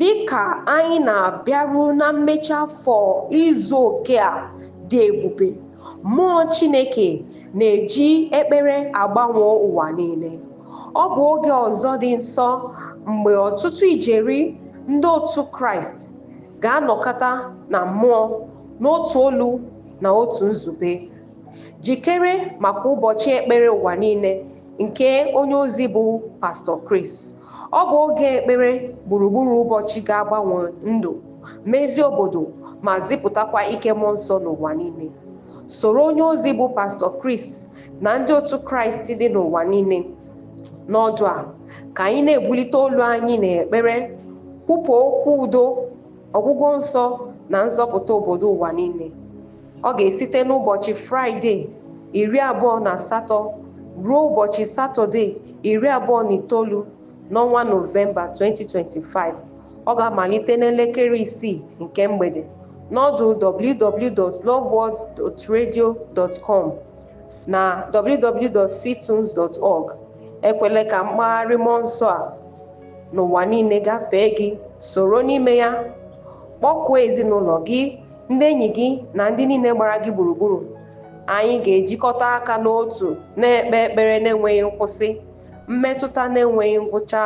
dịka anyị na-abịaru na mmechi afọ izu oke a dị ebube mmụọ chineke na-eji ekpere agbanwe ụwa niile ọ bụ oge ọzọ dị nsọ mgbe ọtụtụ ijeri ndị otu kraịst ga-anọkọta na mmụọ n'otu olu na otu nzube jikere maka ụbọchị ekpere ụwa niile nke onye ozi bụ pastọ Kris. ọ bụ oge ekpere gburugburu ụbọchị ga-agbanwe ndụ mezie obodo ma zipụtakwa ike mmụọ nsọ n'ụwa niile soro onye ozi bụ pastọ Kris na ndị otu Kraịst dị n'ụwa niile n'ọdụ a ka anyị na-ebulite olu anyị na-ekpere, kwupụ okwu udo ọgwụgwọ nsọ na nzọpụta obodo ụwa niile ọ ga-esite n'ụbọchị fraịde iri abụọ na asatọ ruo ụbọchị satọde iri abụọ na itoolu n'ọnwa nọvemba 2025 ọ ga-amalite n'elekere isii nke mgbede n'ọdụ www.loveworldradio.com na www.ctunes.org ekwele ka mkpagharị mmụọ a n'ụwa niile gafee gị soro n'ime ya kpọkuo ezinụlọ gị ndị enyi gị na ndị niile gbara gị gburugburu anyị ga-ejikọta aka n'otu na-ekpe ekpere na-enweghị nkwụsị mmetụta na-enweghị ngwụcha